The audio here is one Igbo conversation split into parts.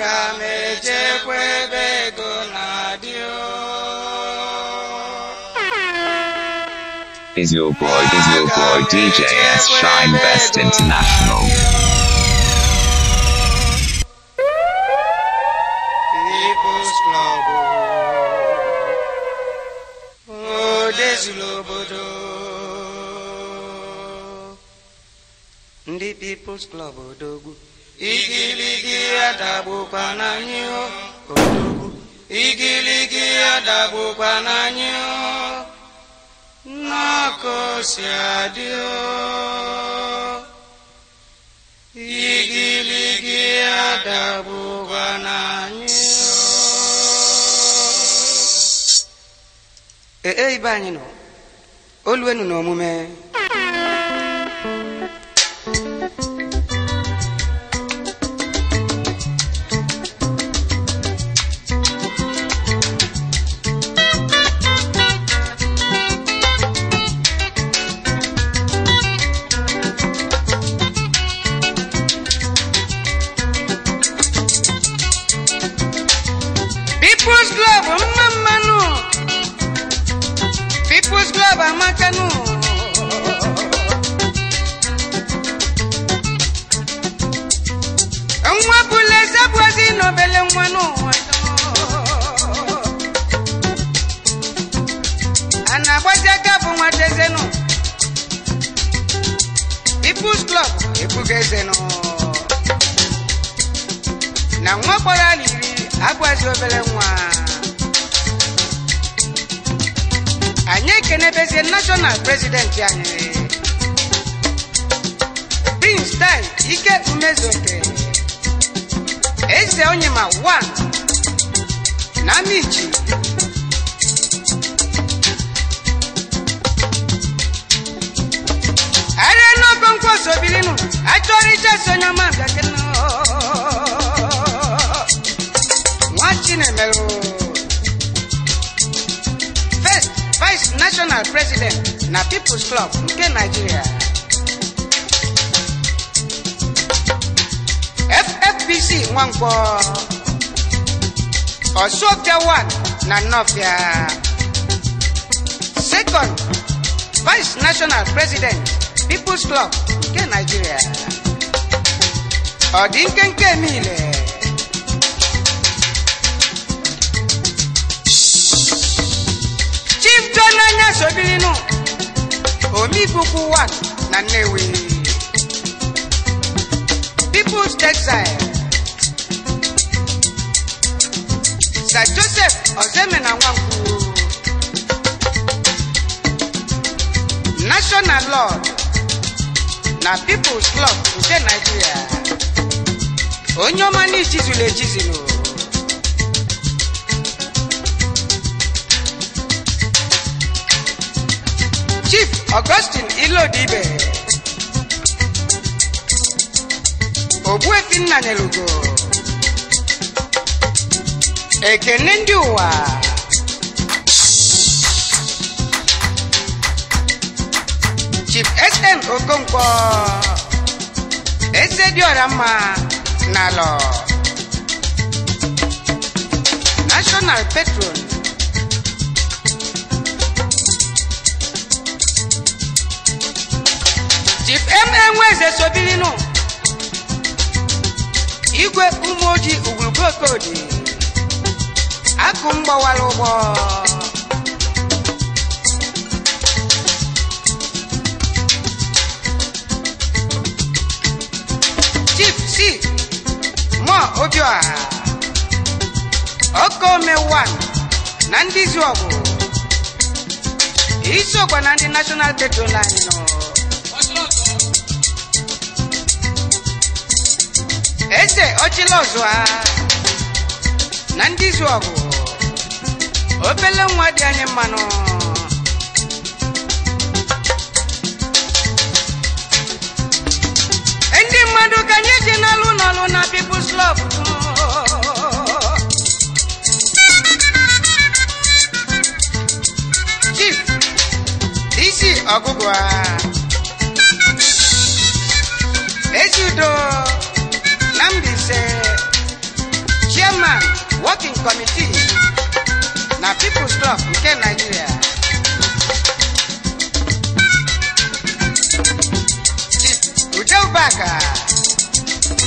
Is your boy, is your boy DJ S Shine Best International? People's Club. Oh, Desilobodo. People's Club odogwu. Igi ya dagbukwa n'anyị odogwu igiligi ya n'anyị n'ọkụ adị igiligi ya n'anyị ee ibe anyị nọ oluwenu n'omume abajo obere nwa anyị ekenebezie national president anyị prince di ike umezoke eze onyema 1 na michi arịa n'ogo nkwosobirinu achọrọ ijeso onye ọma bịakena Chinemelo. First Vice National President na People's Club nke Nigeria. FFBC Nwankwọ Osogdia 1 na Nofia. Second Vice National President People's Club nke Nigeria. Ọ dị nkenke niile. ijo n'anya sobilinu omibukwu 1 na nnewi people's textile sir joseph ozeme na nwankwu national lord na people's club nke nigeria onye ọma n'ichizulu echizulu Chief Augustine Ilodibe Ogbuefi Nnanelugo ekene ndị ụwa Chief SM Okonkwo eze Diorama mma National Petrol na enwe eze so igwe ụmụ ojii ugwurugwu okodi akụ m ụgbọ chief si mọ obioha okome 1 na ndị izu ọgụ isi ọgba na ndị nashọnal tetro anyị nọ ọzọ a ah. na ndị izu ọgụ obele nwa dị anyị mmanụ ndị mmadụ ka anyị ji n'alụ n'ọlụ na People's Club Chief DC ọgụgụ Ezi udo chairman working committee na people's club nke nigeria udeubaka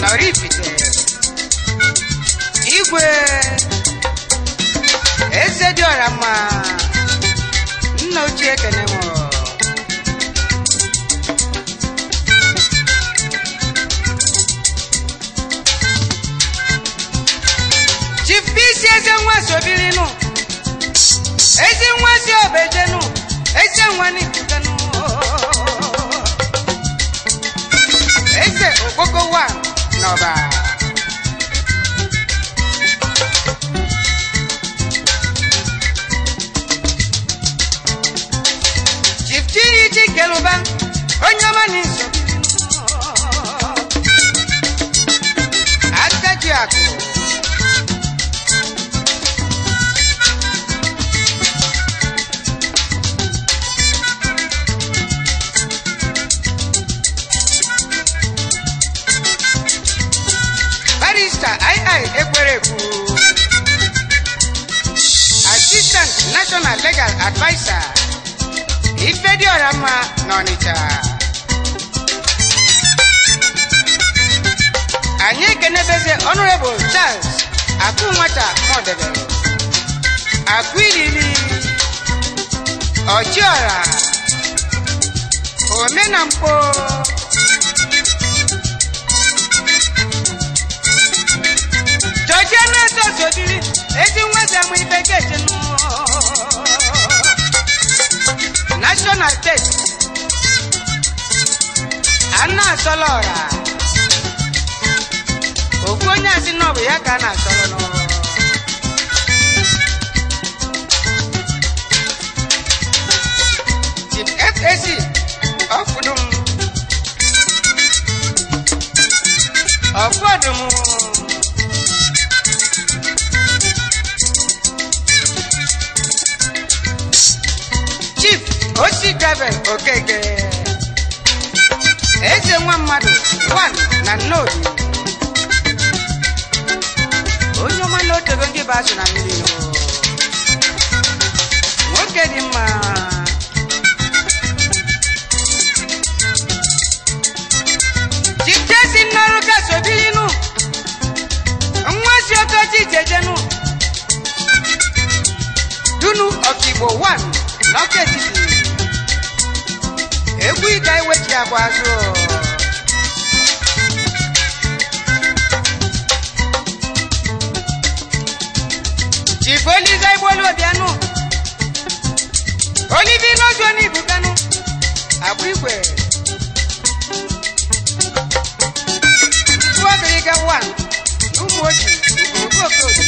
na orifite igwe eze dị ọra mma nna ochie kenemo eze nwasi obirinu ezi nwasi obejenu eze nwani jugenu eze ogogo wa n'ọba chief chiri chikeluba onye ọma n'isi financial advisor ifediọramma n'Ọnịcha anyị ekenebeze honorable Charles akụ nwata mọdebe akụ ilili ọchiọra omenamkpo Kaduna State ana asọlọ ọra okwu onye asị na ọ bụ ya ka a na-asọrọ n'ọrụ Chief FAC ọkpụdum ọkpụọdụm Oshikabe Okeke eze nwa mmadụ na nnọọ onye ọma na otego ndị be azụ na mmiri nwoke dị mma jikesi n'ọrụ kasobinu nwa si okoji jejenu dunu ọkigbo 1 n'ọka etiti egwu ịga iwechi agwa azụ jiboliza igbolu obianụ olibi n'ozu onye ibuganụ agwa igwe tuwo gịrịga 1 n'ụmụ ojii ogogo okoji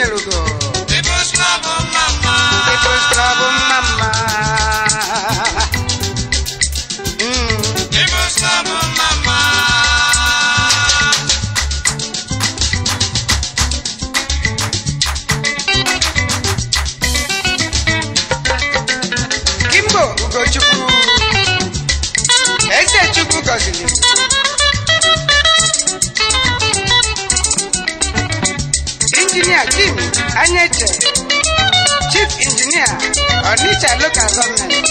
Debo Te esclavo, mamá. mamá. Anyete, Chief Injinia, Onitsha Local Government.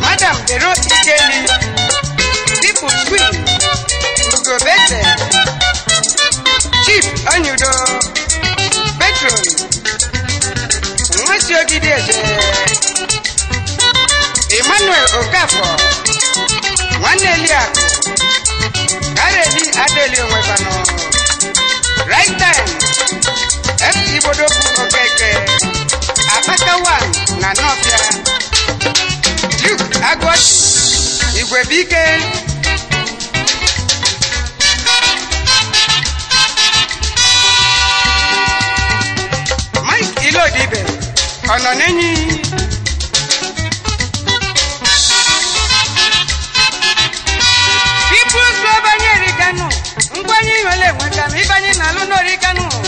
Madam Dero Ikeli, pipo Queen, Ugobete, Chief onyudo Petron, Nwesi Ogideze, Emmanuel Okafor, Nwanne Eliakụ, Kareli Adeli Onwefano, Right time. MC Bodokwu Okeke Apata One na Nọfịa Duke Agwọchi Igwebike Mike Ilodibe Ọnọnenyi People's Global Nyeri Kanu ngwanye ihe ole enweta ma ịbanye n'alụ n'ori Kanu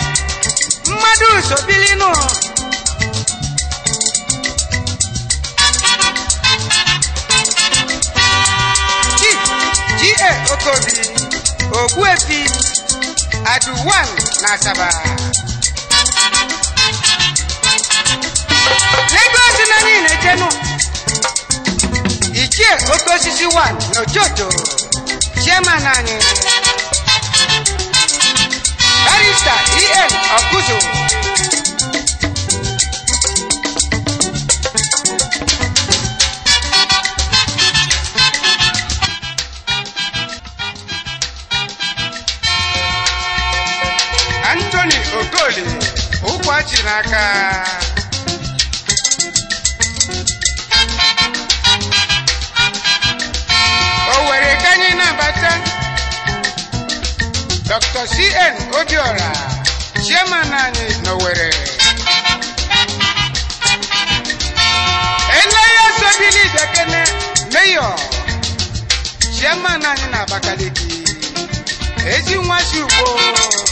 Muhammadu Sobilinu. G.A. Okobi, Ogbuefi, Aduwan n'Asaba. Lagos na niile jenu. Ichie Okosisi 1 n'Ojoto, Chairman anyị. Mr. E.M. Akuzo. Anthony Okoli ụkwụ achị n'aka Dr. C.N. Odiora, chairman anyị n'Owerri. Eleya Sobili Dekene, meyo, chairman anyị na Abakaliki. Ezi nwa Ugbo.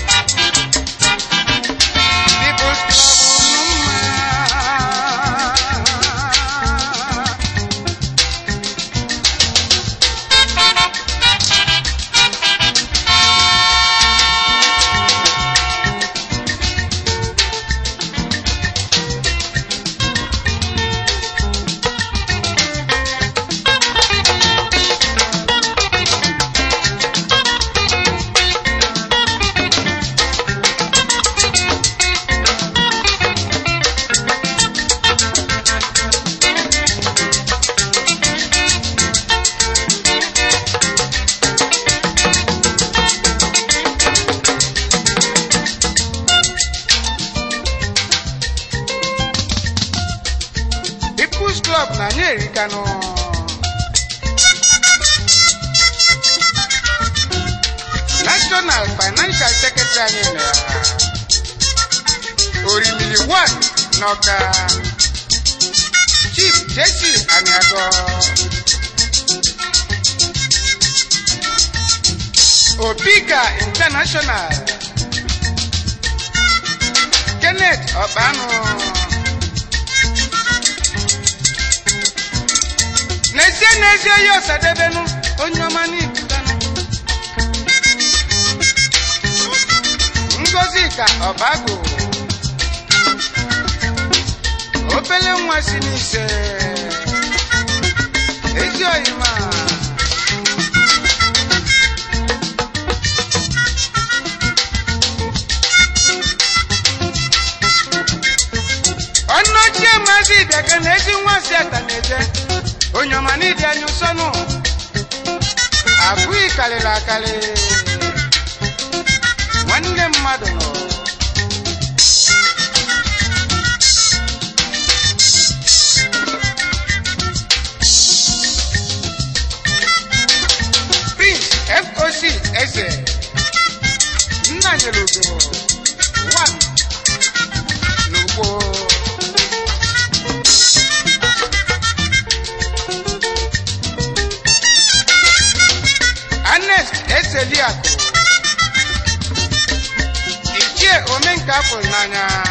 mexicano. National Financial Secretary Orimili One Noka Chief Jesse Aniago Obika International Kenneth Obano. n'ezi oyi nụ onye ọma n'ibudanu ngozi ka ọbago obele nwa si n'ise ezi oyi ọnụ ochie maazị ịbịaka na ezi nwa si ata na-eje onyomani dya nyusono akwikalelakale nwanne mmadụ mañana.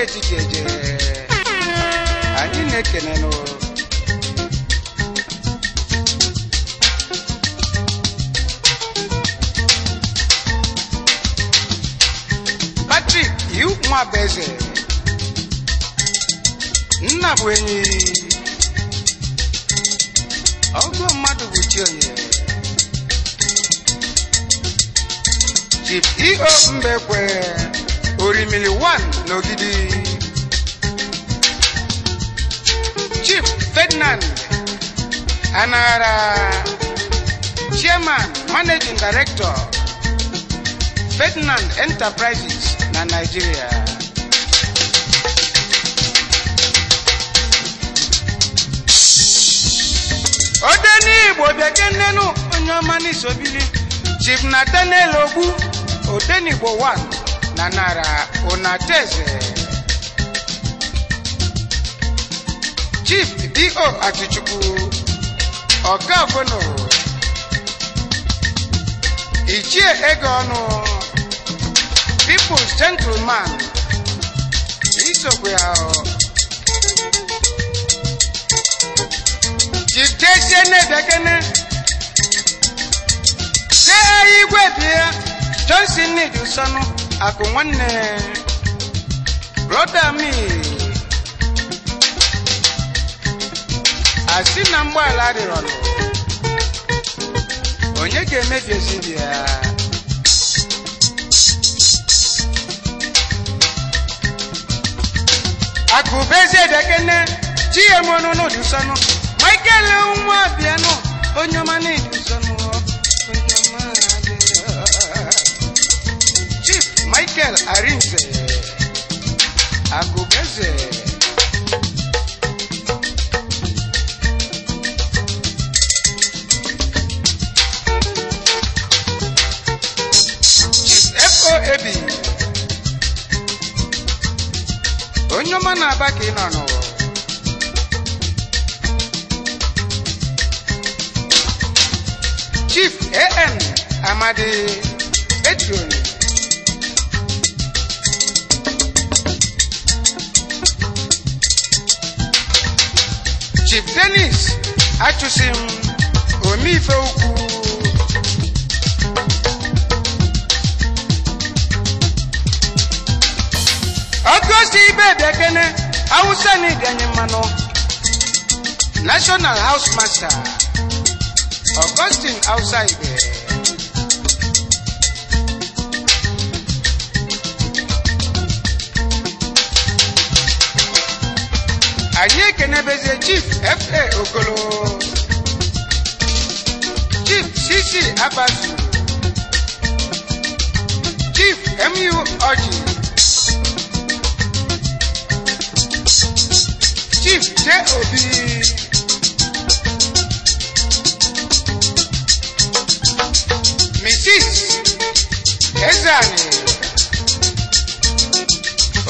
uche chikeje anyị na-ekene n'ụlọ Patrick iwu nwabeze nna bụ enyi ọgụ mmadụ bụ chionye Chief EO Mbekwe Emily One n'Ogidi. Chief Ferdinand Anara. Chairman Managing Director Ferdinand Enterprises na Nigeria. Ode n'Igbo bekee nnenu onye ọma n'isobili Chief Nathaniel Ogbu Odenigbo one. na nara unateze chief do atichukwu ọkafunu ichie ego ọnụ people's gentleman isokwe ahụ jitesie na-ebekene see igwe bịa johnson need usonu akụ nwanne broda mi asị na adịrị ọnụ onye ga-emebi ezidi ya akụbezi edekene ji ya mọnụ n'ụdị sọnụ michael nwa bịanụ onye ọma n'ihi. Michael Arinze Angogeze. FOAB onye ọma na-aba ka ị nọ n'ụwa Chief A.N. Amadi Etioni denis achụsim omeife ukwu ọgọsi ibe bekene hausa ganye mmanụ national house master augustine hausa ibe anyị ekenebezie chief fa okolo chief cc abazu chief mu ọjị chief j obi mrs ezeani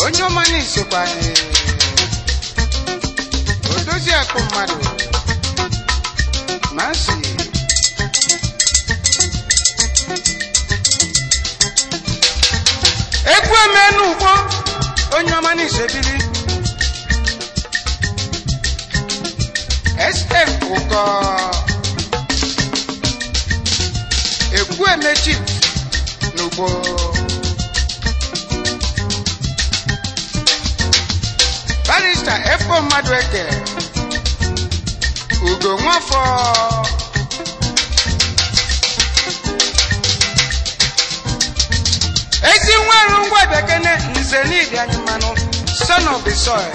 onye ọma na-esokwa anyị oriakụ mmadụ masị egwu emenugbo onye ọma n'ise biri estef ụkọ egwu emechi n'ugbo barista efo mmadụ ekere ugo nwafọ ezi nweru ngwa bekene nze n'ịdị anyị mmanụ son of the soil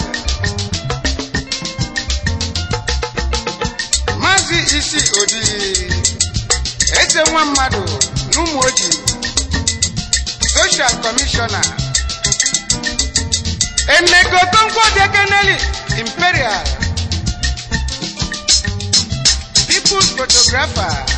maazị isi odi eze nwa mmadụ n'ụmụ oji social commissioner emegotonkwo dekeneli imperial good photographer.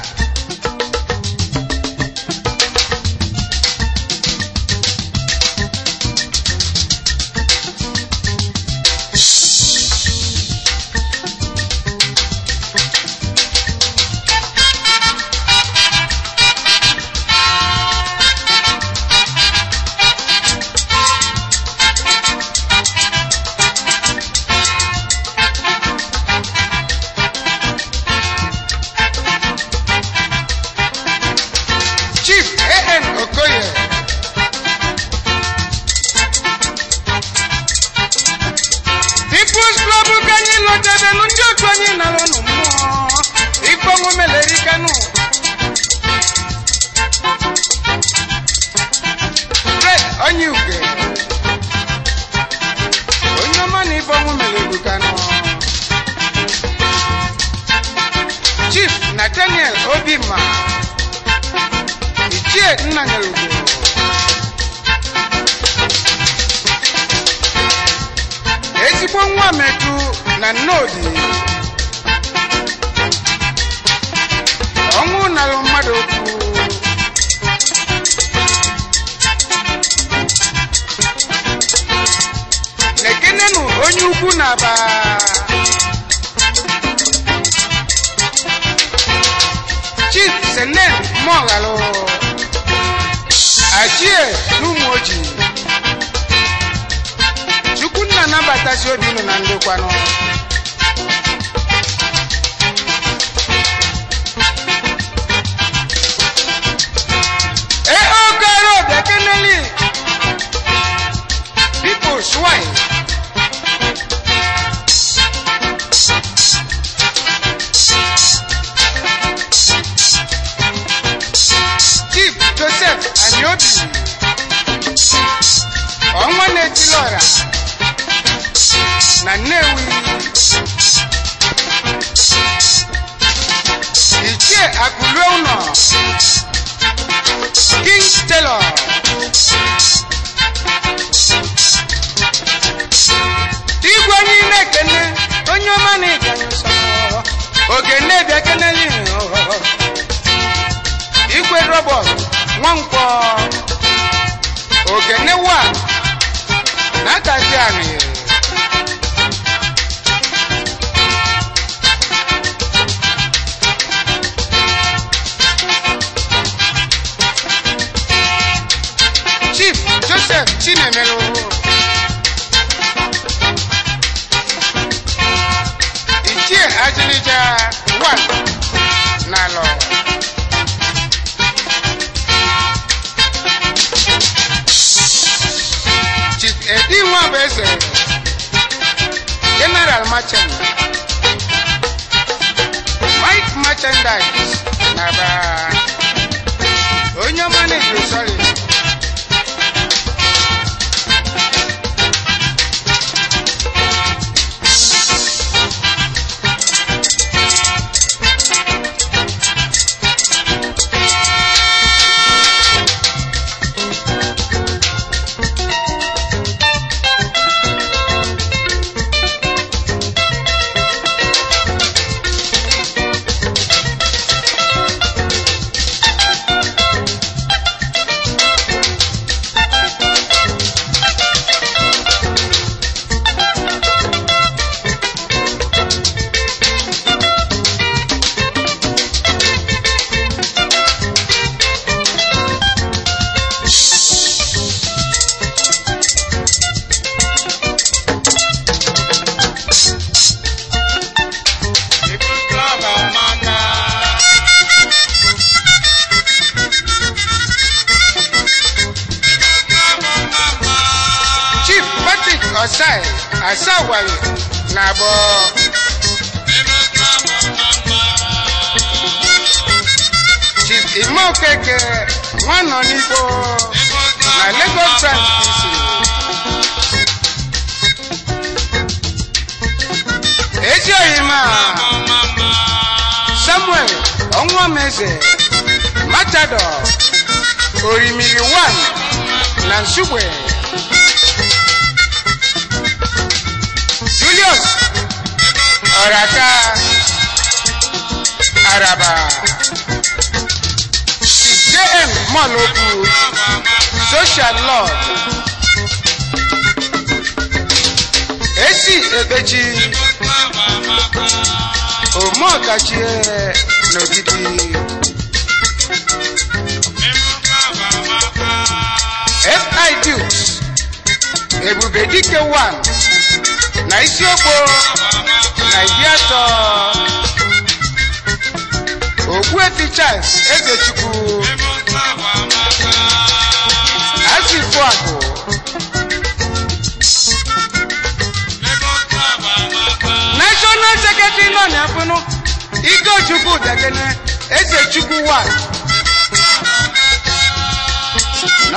President, General Merchandise, Mike Merchandise, Naba.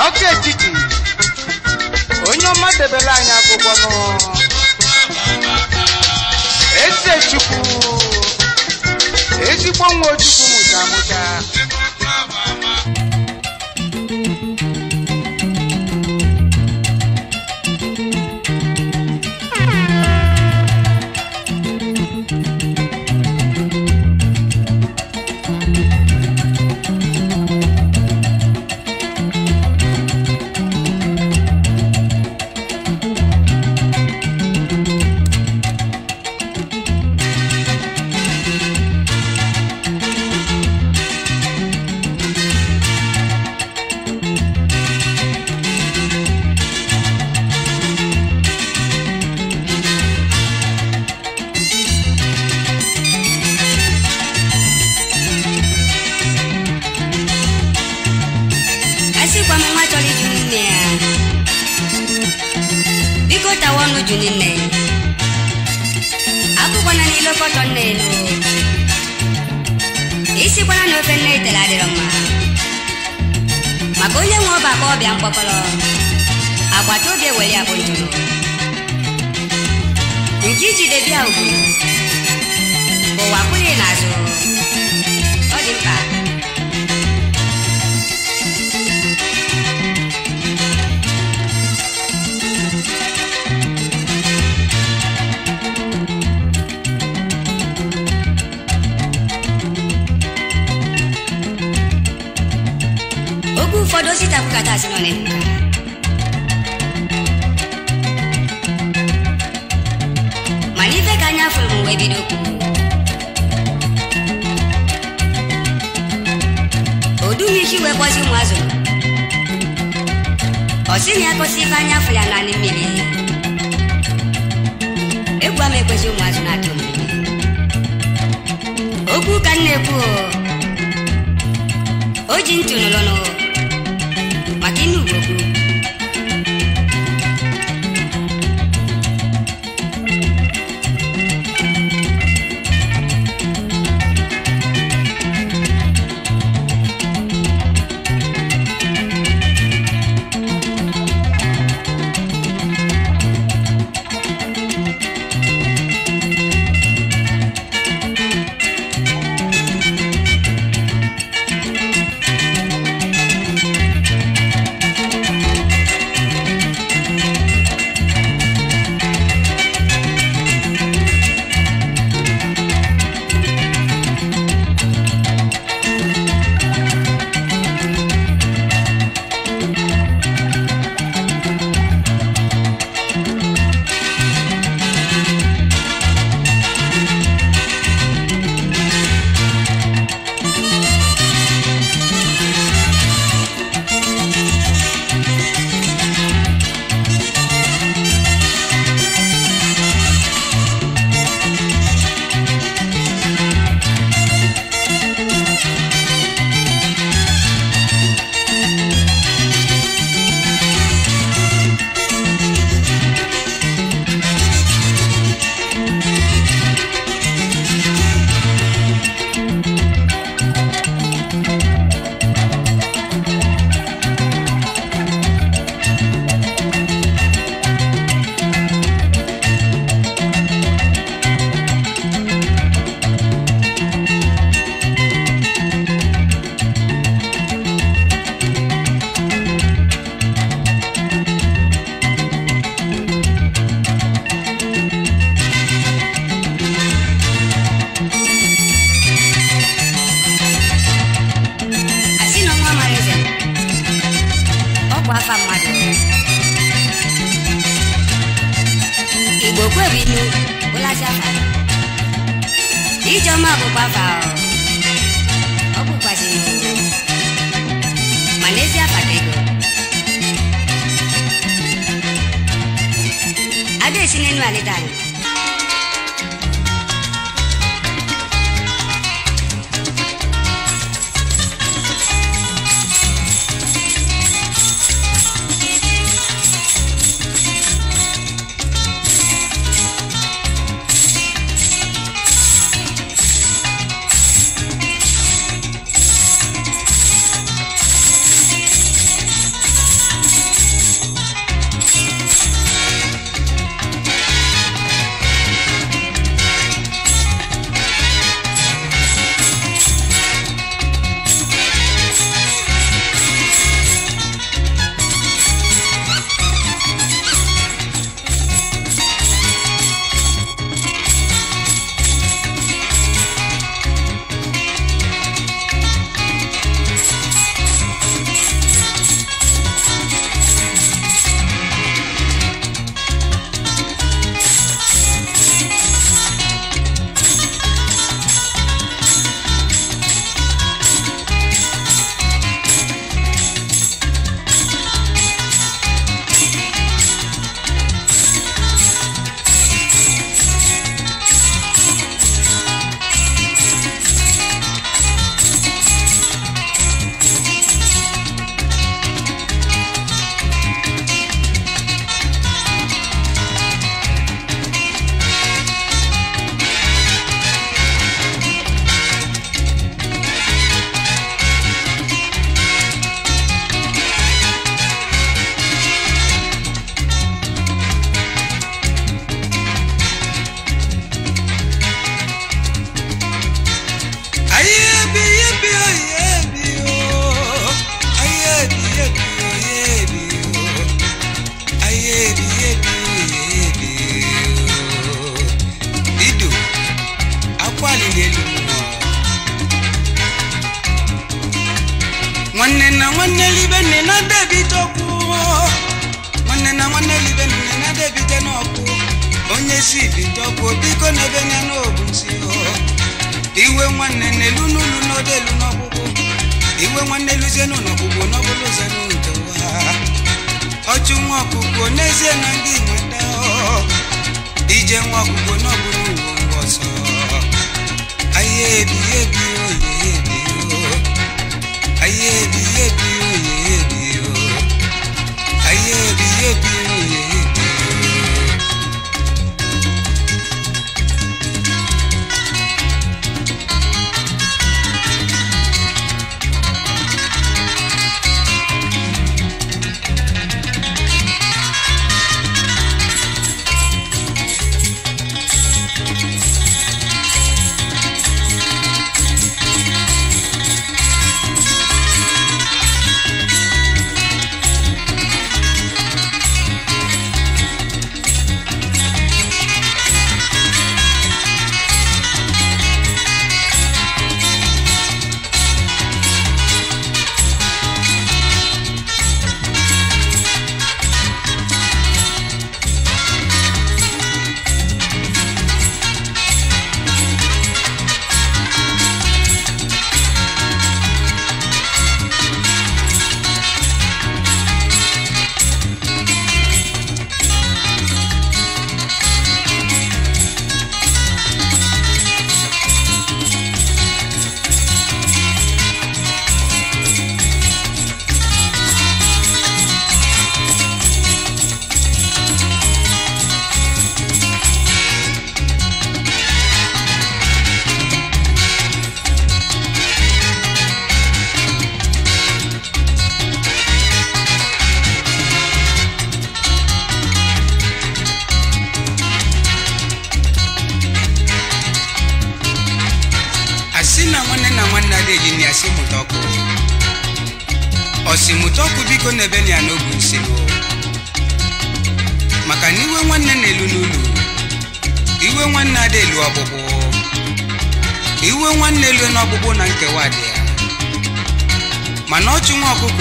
ọkụ etiti onye ọma debere anyị akwụkwọ nụ chukwu ezigbo nwa ojukwu mụta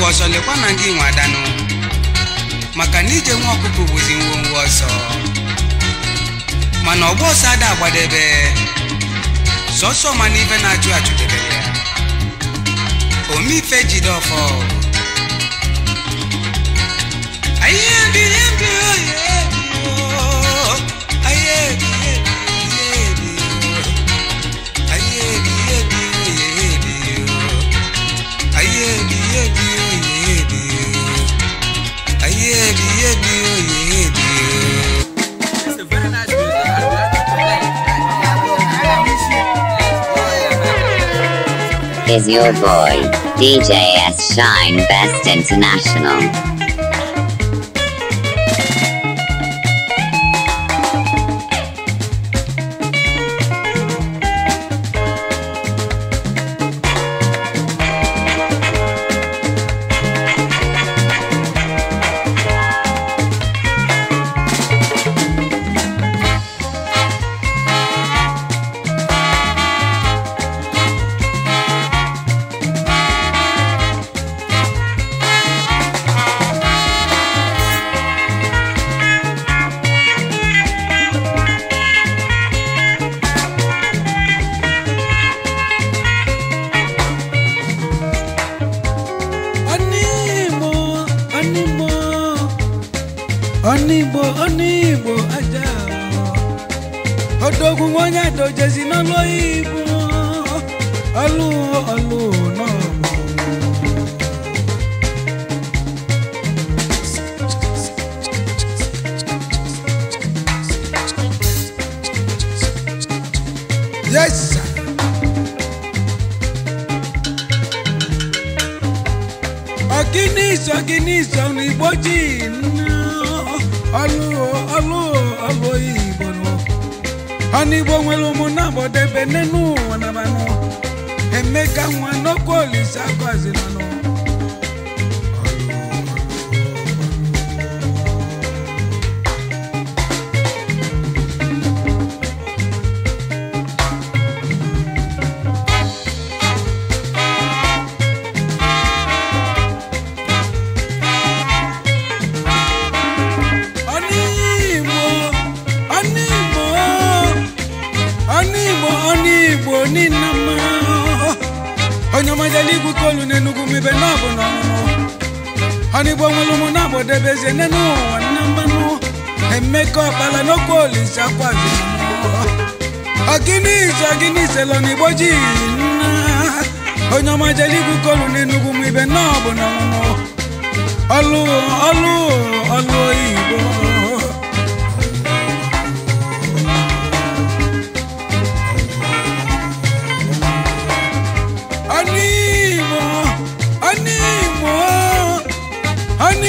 ọkụkụ ọzọ lekwa na ndị nwe adanụ maka na ije nwa bụzi ngwongwo ọzọ mana ọgba ọsọ ada agbadebe sọsọ mana ife na-achụ achụdebe ya omeife jide ọfọ oye is your boy, DJ S Shine Best International.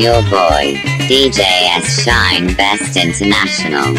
your boy, DJS Shine Best International.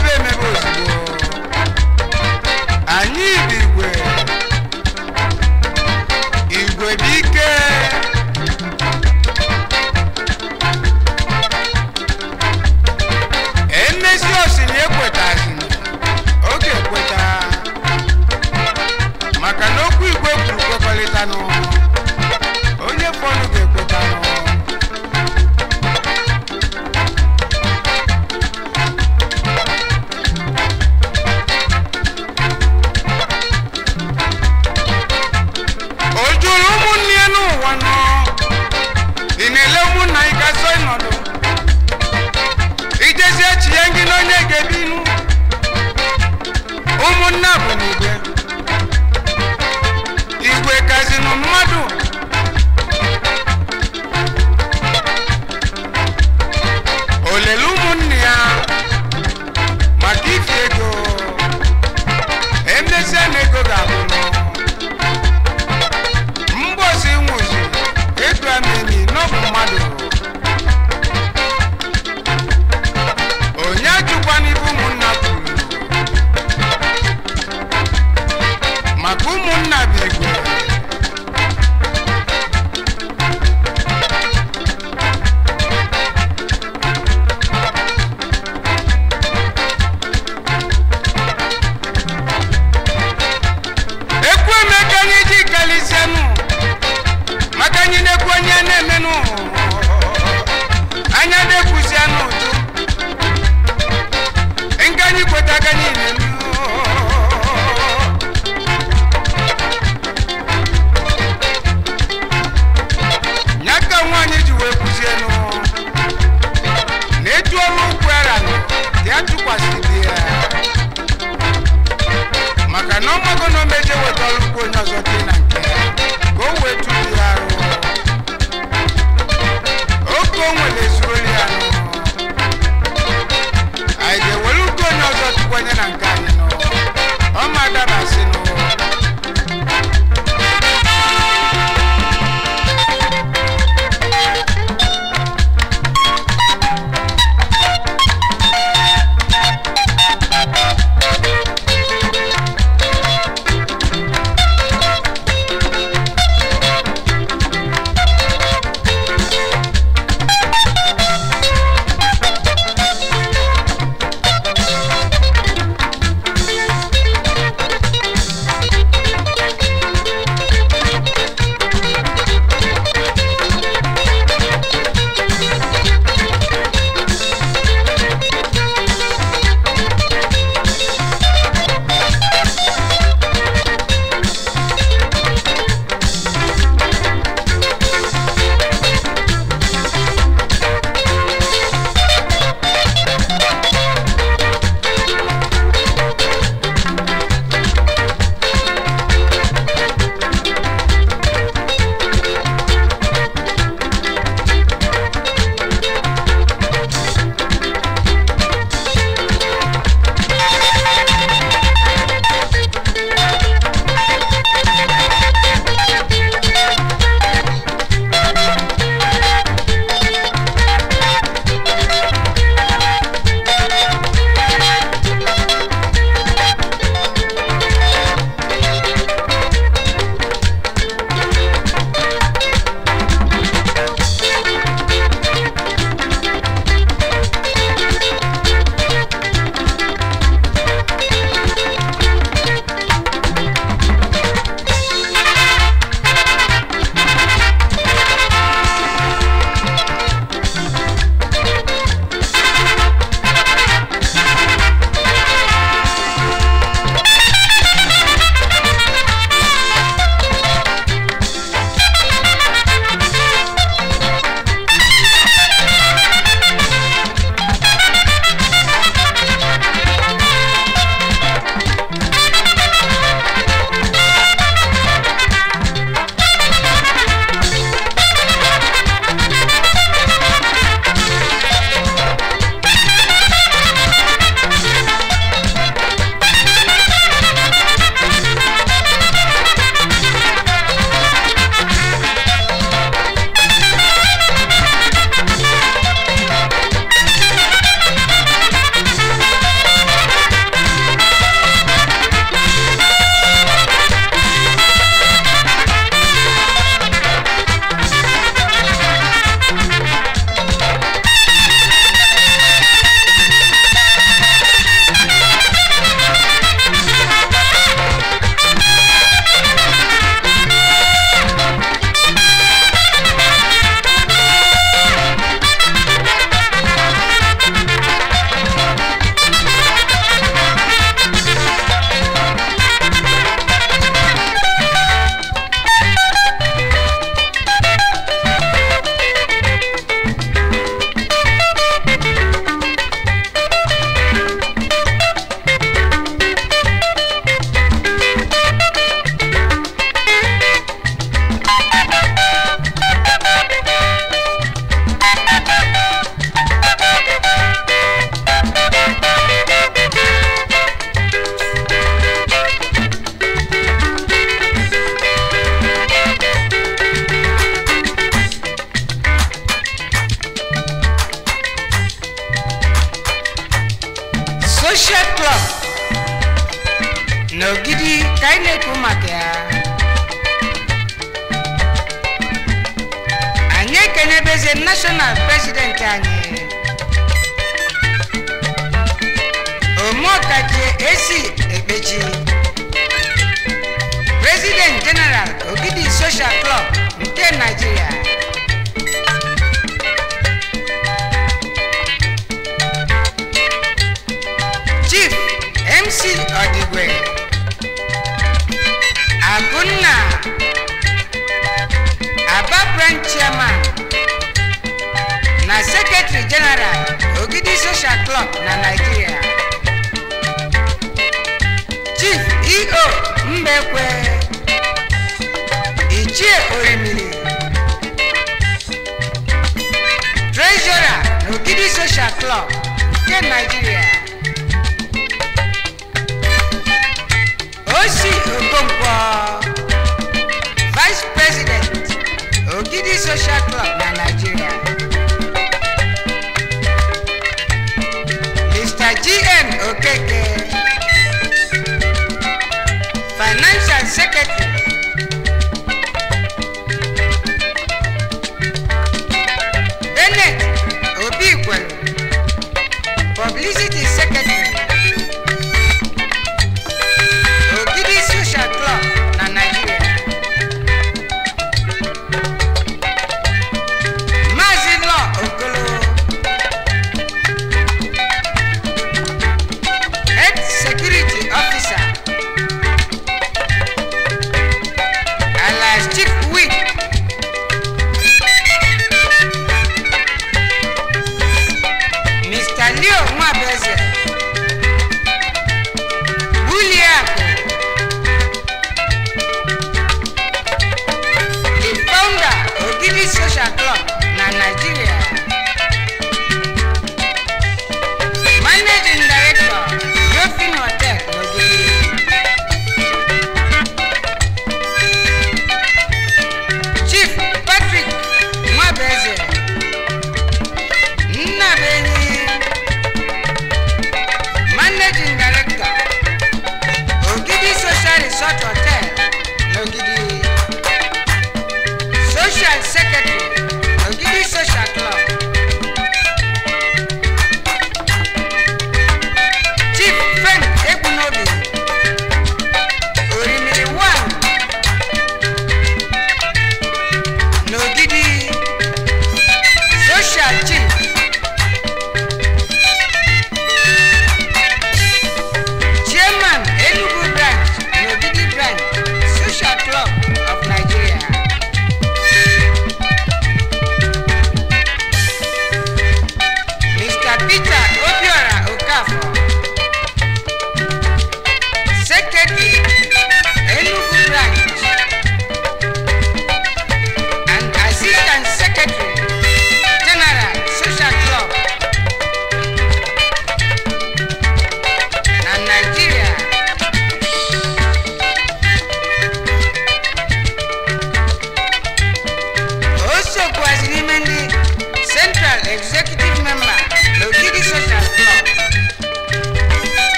me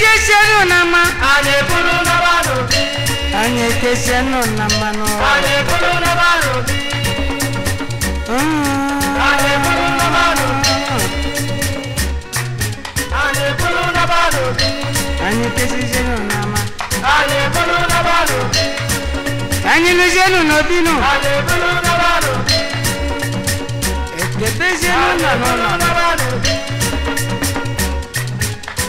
kesenu na ma. Anyị bụrụ na ba n'obi. Anyị kesenu na ma nọ. bulu bụrụ na ba n'obi. Anyị bụrụ na ba n'obi. Anyị bụrụ na ba n'obi. Anyị kesenu na ma. Anyị bụrụ na ba n'obi. Anyị lụzienu n'obi nọ. Anyị bụrụ na ba n'obi. Ekebe zenu na nọ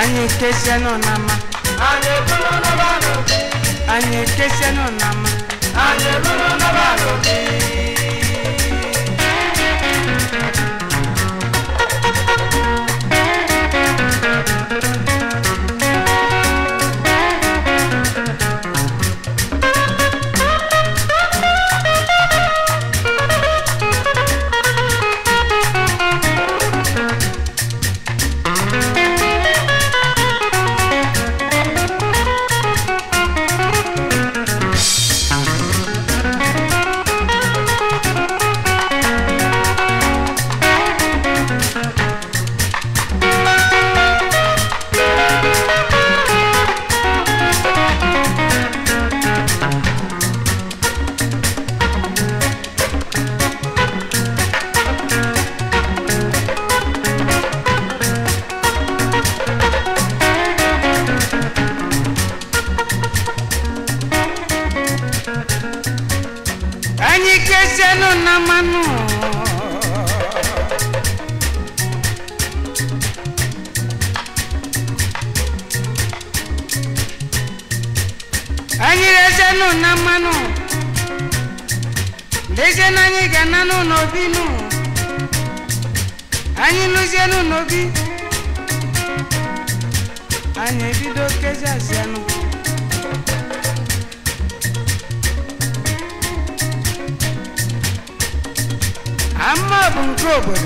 Anyị kesienụ na nama, Anyị ebulu n'ọba n'obi. Anyị kesienụ na ama. Anyị ebulu n'ọba n'obi. forward.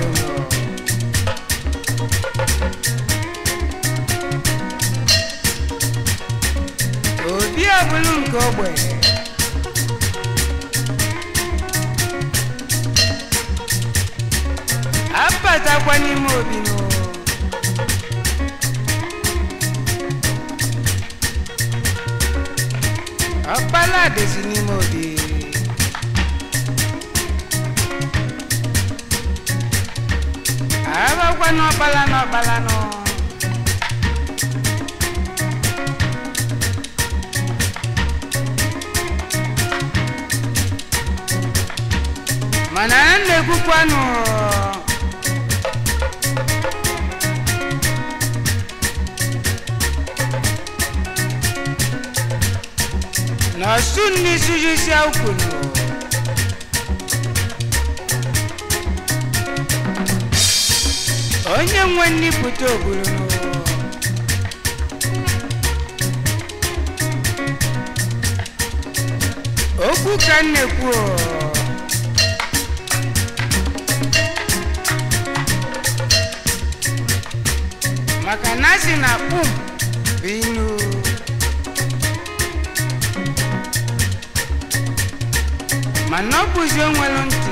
si na um binu. Ma oh, na ọ bụzi onwelu ntị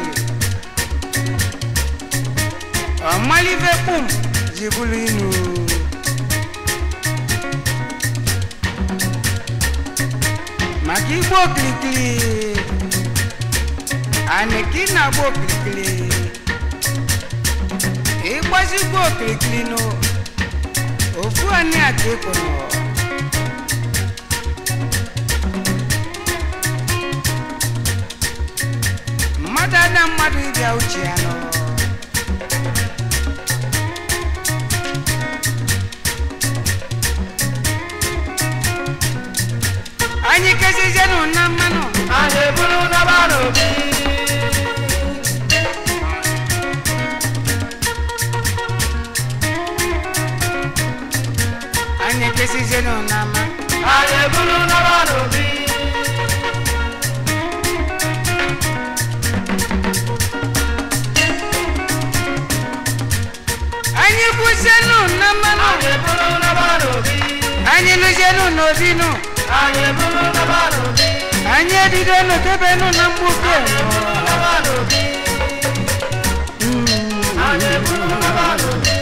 ọ malibe um ji bụrụ inu maka igbo okirikiri anị ka ị na-agba okirikiri ịgbazigbo okirikiri Chuani Adekono. Mmadụ ada mmadụ ịbịa uche ya n'ụlọ. didenu nodinu anyị edidenu tebenu na mgbuke anyị eburu na balobi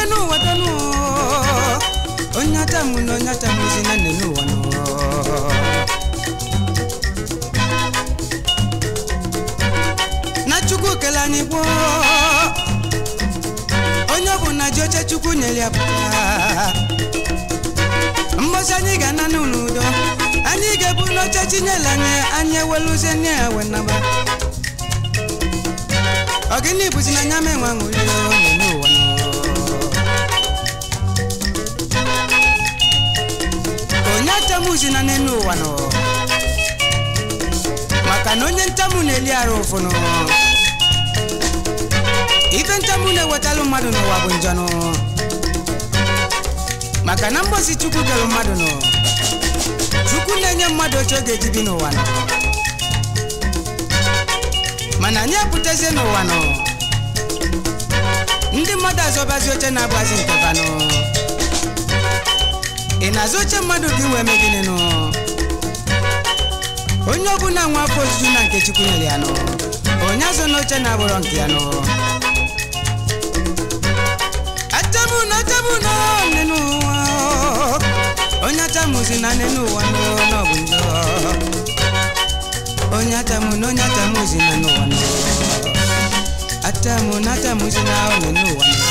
wadanu wadanu onyatamu n'onyatamu zina nenu wano na chukwu kele anyị gboo onye ọbụla ji oche chukwu nyere ya pụta mbosi anyị ga-ana n'udo anyị ga-ebu nye chinyere anyị anyị eweluzie nne ya wenaba ọgịnị bụzi na anya menwe ṅụrie na n'elu ụwa nọ maka na onye ntamu na-eli arụ ụfụnụ ife ntamu na-ewetalụ mmadụ n'ụwa bụ njọnụ maka na mgbosi chukwu kelụ mmadụ nọ chukwu na-enye mmadụ oche ọ ga-eji bi n'ụwa nọ mana anyị apụtazie n'ụwa nọ ndị mmadụ azọbazi oche na nke banụ ị na-azụ oche mmadụ gị wee mee gịnị nụ onye ọbụla nwa afọ ojuju na nke Chukwu nyere ya nụ onye azụ na oche na-abụrọ nke ya nụ achamụna achamụna nne n'ụwa onye achamụzi na nne n'ụwa n'ọ bụ njọ onye achamụna onye achamụzi na n'ụwa n'ọ atamụ na atamụzi na nne n'ụwa n'ọ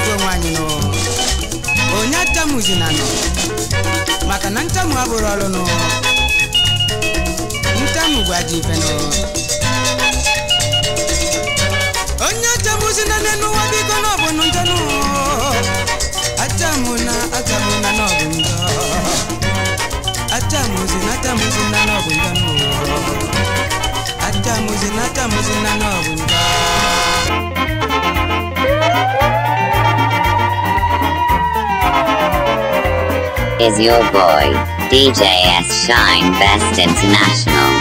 ife onwe anyị onye ntamuzi na nọ maka na ntamu abụrụ ọrụ nụ ntamu bụ ajọ ife nụ onye ntamuzi na nne n'ụwa biko na ọbụ njọ nụ atamu na atamu na na ọbụ njọ atamuzi na atamuzi na na ọbụ njọ nụ atamuzi na atamuzi na na ọbụ njọ Thank you. is your boy, DJS Shine Best International.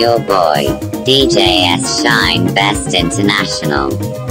your boy, DJ S Shine Best International.